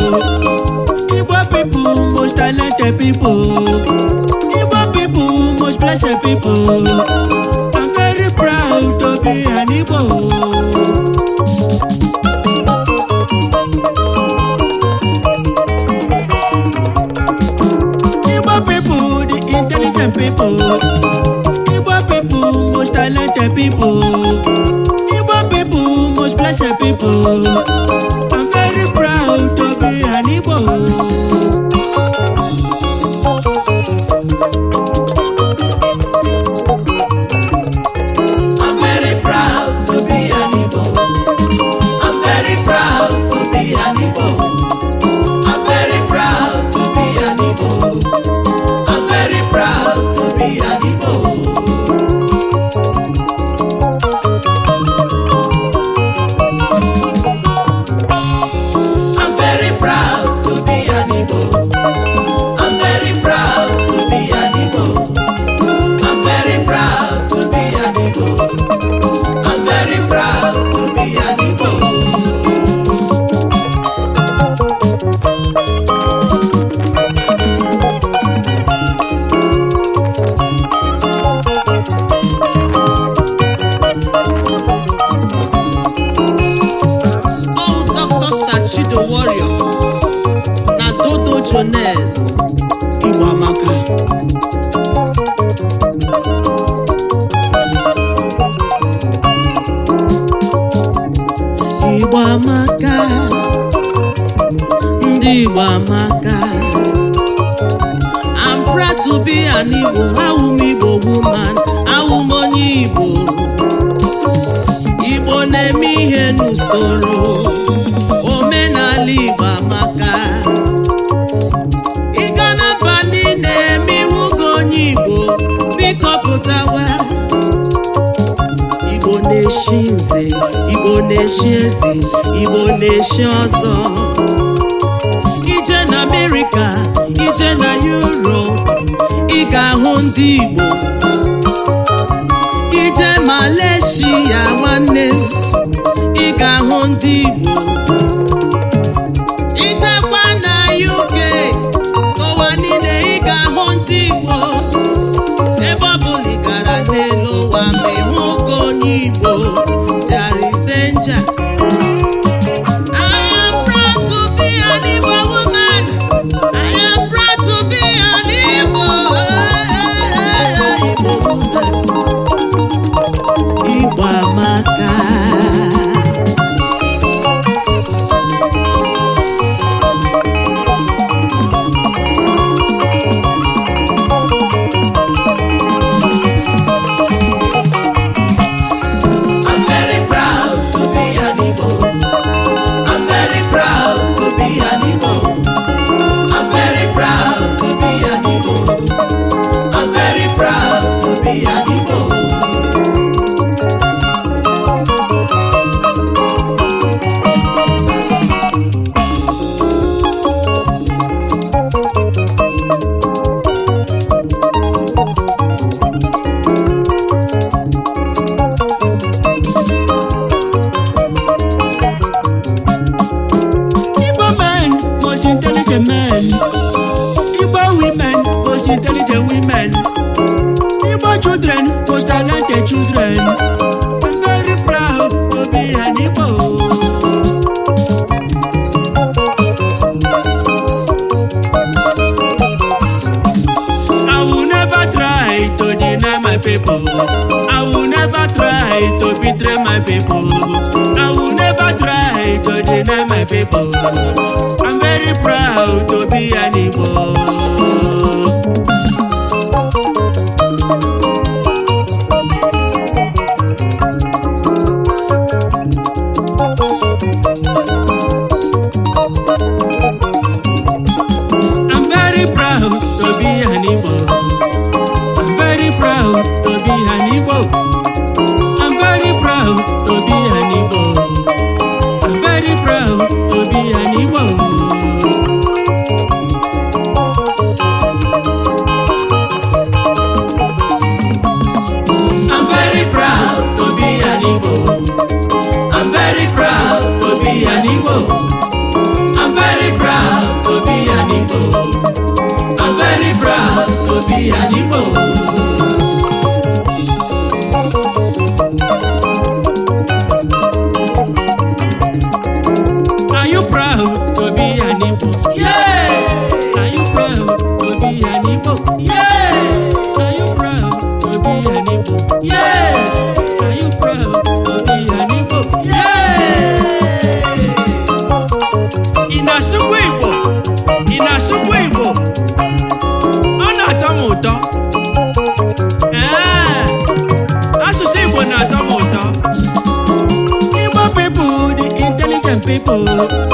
igbo pipu, most talented pipu. igbo pipu, most blessed pipu. i'm very proud to be an igbo Igbo intelligent pipu. Agnes Igbo amaka Igbo amaka ndị Igbo amaka I'm proud to be an Igbo bụ Igbo woman onye Igbo Igbo na-eme ihe n'usoro na-eshi eze igbo na-eshi ọzọ ije na amerịka ije na yuropu ị ga-ahụ ndị igbo ije maleshia nwanne ị ga-ahụ ndị igbo Igbo I'm very proud to be an Igbo o